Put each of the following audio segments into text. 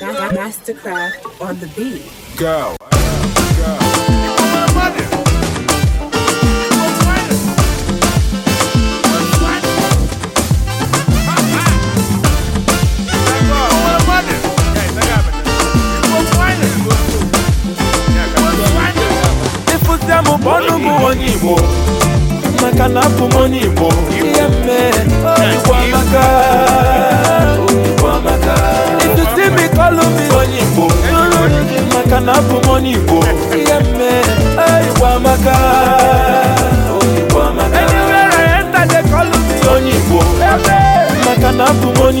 Mastercraft on the beat. Go. onye Igbo maka na abụ m onye Igbo ihe mmee oh, onye Igbo oyibo Igbo onye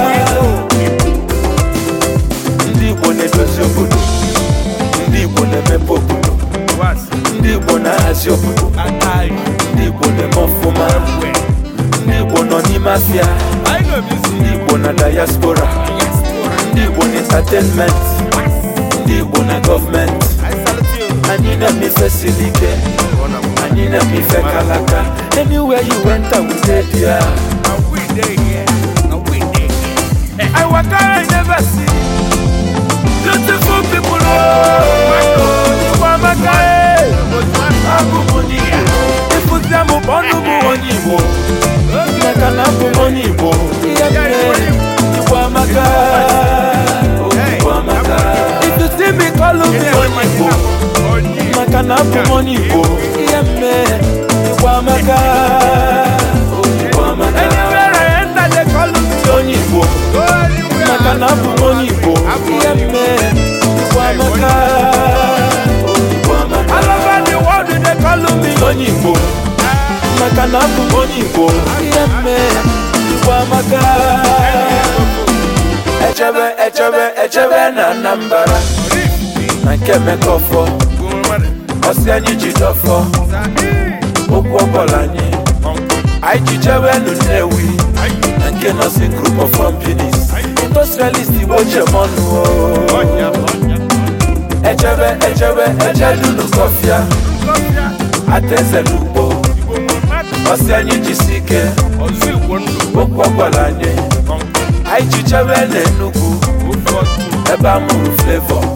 Igbo ndị Igbo na-edozi obodo ndị na-emepe obodo ndị Igbo na-ahazi ndị eme ọfụma ndị n'ime Igbo na diaspora ndị Igbo n'entertainment ndị Igbo na government anyị na-eme ife siri ike anyị kalaka anywhere you went I will dey there I waka I never see beautiful people oh Igbo amaka eh abụbụ ndị Igbo ịpụta onye Igbo onye Igbo ihe mme Igbo amaka onye Igbo maka na abụ m onye Igbo ihe mme Igbo amaka onye Igbo maka na abụ m onye Igbo ihe mme Igbo amaka echebe echebe echebe na Anambra na nke Emeka Ọfọ ọsị anyị ji dọfọ okwu ọbọla anyị anyị ji jewe elu nnewi na nke nọsi group of companies industrialist igbo jemọnụ echebe echebe echedulu kọfịa ataeze n'ugbo ọsị anyị jisi ike okwu ọbọla anyị anyị ji jewe elu enugwu ebe a mụrụ flevọ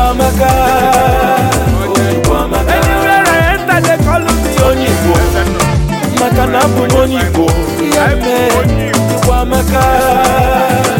Onyekwamaka Onyekwamaka Anywhere I enter they call me Onyeigbo Maka na abụ m Onyeigbo Ya